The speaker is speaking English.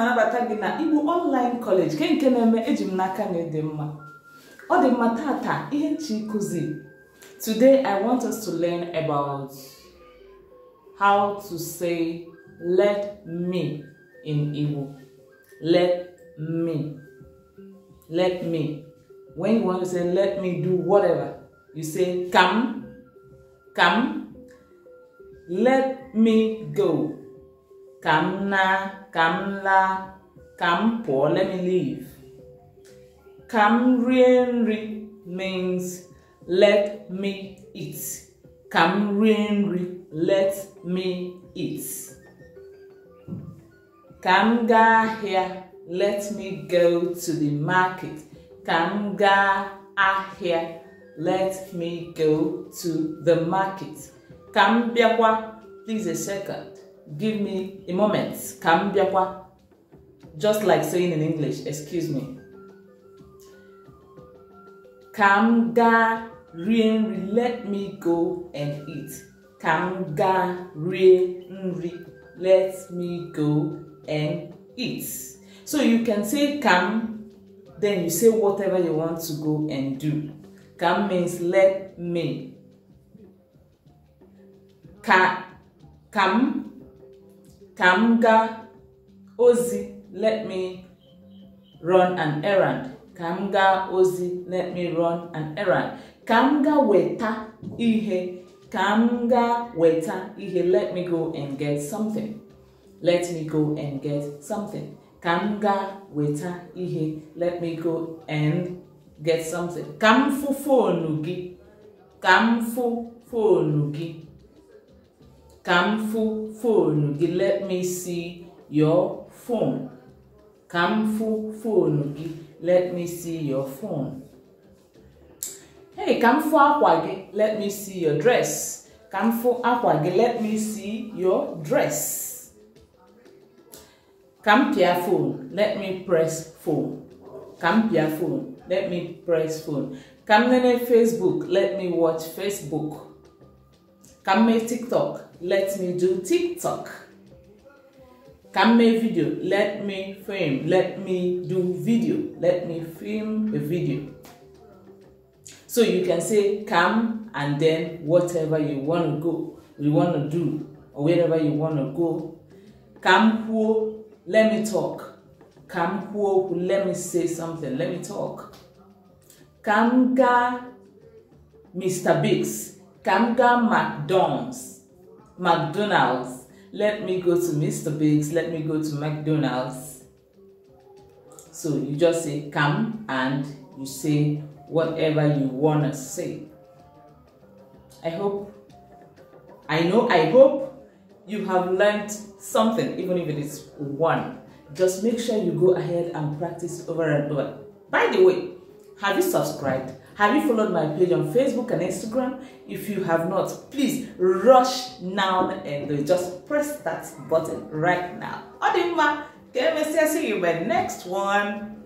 na-anabata gị na Igbo online college nke nke na-eme eji m n'aka na ịdị mma ọ dị mma tata ihe nchi kụzi today i want us to learn about how to say let me in Igbo let me let me when you want to say let me do whatever you say come come let me go ka m na ka m laa ka m pụọ let me leave ka m rie nri means let me eat ka m rie nri let me eat ka m gaa ahịa let me go to the market ka m gaa ahịa let me go to the market ka m bịakwa please a second give me a moment ka m just like saying in english excuse me ka m gaa rie nri let me go and eat ka m gaa rie nri let me go and eat so you can say ka then you say whatever you want to go and do ka means let me ka ka ka m gaa ozi let me run an errand ka m gaa ozi let me run an errand ka m gaa weta ihe ka m gaa weta ihe let me go and get something let me go and get something ka m gaa weta ihe let me go and get something ka m fụ foonu gị ka m fụ foonu gị ka m fụ foonu gị let me see your phone ka m fụ foonu gị let me see your phone hey ka m fụ akwa gị let me see your dress ka m fụ akwa gị let me see your dress ka m pịa phone let me press phone ka m pịa phone let me press phone ka m nene facebook let me watch facebook ka m mee tiktok let me do TikTok. Can make video, let me film, let me do video, let me film a video. So you can say come and then whatever you want to go, you want to do, or wherever you want to go. Come who, let me talk. Come who, let me say something, let me talk. Kamga Mr. Biggs, Kamga McDonald's, McDonald's. Let me go to Mr. Biggs. Let me go to McDonald's. So you just say come and you say whatever you want to say. I hope, I know, I hope you have learned something, even if it is one. Just make sure you go ahead and practice over and over. By the way, have you subscribed? Have you followed my page on Facebook and Instagram? If you have not, please rush now and just press that button right now. Odimma, can I see you My next one?